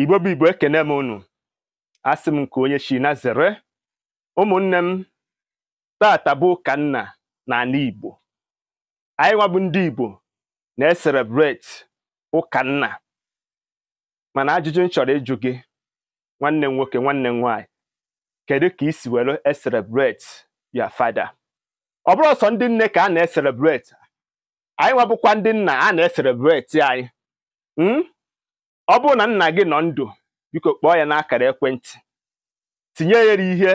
igbo bụ igbo ekene m unu asị m nke onye shi na zere ụmụnne m tata bụ ụka nna na ala igbo anyị nwabụ ndị igbo na-eserebreti ụka nna mana ajụjụ m chọrọ ịjụ gị nwanne m nwoke nwanne m nwaanyị kedu ka i si were eserebreti ya fada ọ bụrụ sọ ndị nne ka a na-eserebreti anyị nwabụkwa ndị nna a na-eserebreti anyị hmm? ọ bụrụ na nna gị nọ ndụ biko kpọọ ya n'akara ekwentị tinye ya ihe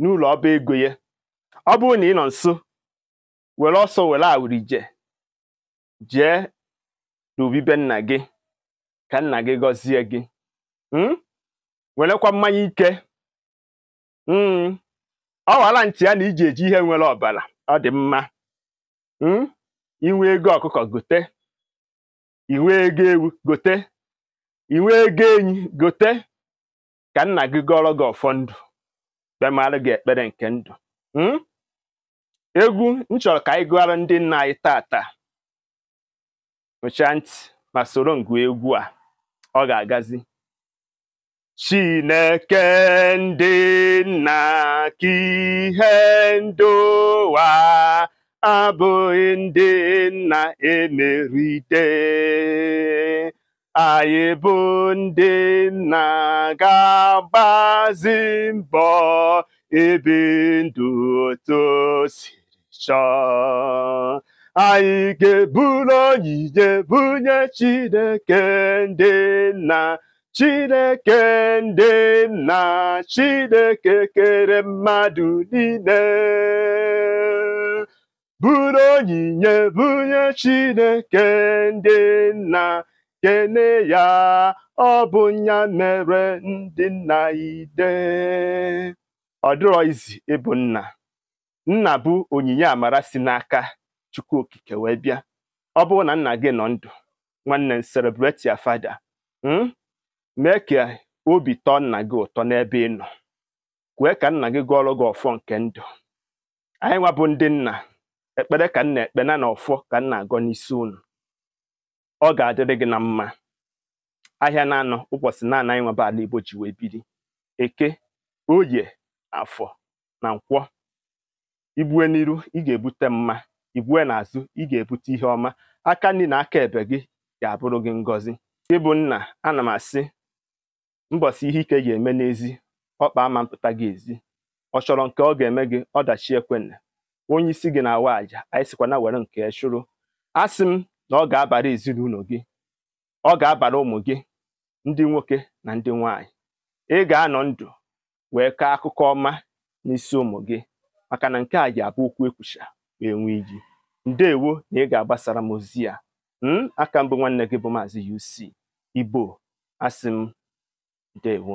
n'ụlọ ọba ego ya ọ bụrụ na ị nọ nso were ọsọ were awurije jee n'obibe nna gị ka nna gị gọzie gị hmm? werekwa mmanya ike hmm? ọ wara ntị ya na iji eji ihe nwere ọbara ọ dị mma hmm? inwe ego ọkụkọ gote inwe ego ewu gote inwe ego enyi gote ka nna gị gọrọ gị ọfọ ndụ bịamalụ gị ekpere nke ndụ hmm? egwu m chọrọ ka anyị gụọrọ ndị nna anyị taata nụchaa ntị ma soro ngụ egwu a ọ ga-agazi Chineke ndị nna ka ihe ndị abụghị ndị nna emeride anyị bụ ndị nna ga agbazi mbọ ebe ndụ otu siri chọọ anyị ga-eburu onyinye bunye Chineke ndị nna Chineke ndị nna Chineke kere mmadụ niile buru onyinye bunye Chineke ndị nna kene ya ọ bụ ya mere ndị nna ide ọ dịrọ izi ịbụ nna nna bụ onyinye amara si n'aka chukwu okike wee bịa ọ bụrụ na nna gị nọ ndụ nwanne celebrate your fada hmm, mee ka obi tọọ nna gị ụtọ n'ebe ị nọ kwee ka nna gị gụọrọ gị ọfọ nke ndụ anyị nwa bụ ndị nna ekpere ka nna ekpe na ọfọ ka nna agọ n'isi unu ọ ga-adịrị gị na mma ahịa na-anọ ụbọchị na-ana anyị nwebe ala Igbo ji wee biri eke oye afọ na nkwọ ibue n'iru ị ga-ebute mma ibue n'azụ ị ga-ebute ihe ọma aka nri na aka ebe gị ga-abụrụ gị ngọzi ịbụ nna ana m asị mbọsị ihe ike ga-eme n'ezi ọkpa ama mpụta gị ezi ọ chọrọ nke ọ ga-eme gị ọdachi ekwenne onye isi gị na-awa àjà anyị sikwa na were nke chụrụ asị m na ọ ga-abara ezinụlọ gị ọ ga-abara ụmụ gị ndị nwoke na ndị nwanyị ị ga-anọ ndụ wee kaa akụkọ ọma n'isi ụmụ gị maka na nke a ji abụ okwu ekwucha wee nwee iji ndeewo na ị ga-agbasara m ozi ya hmm? aka mbụ nwanne gị bụ maazị UC Igbo asị m ndeewo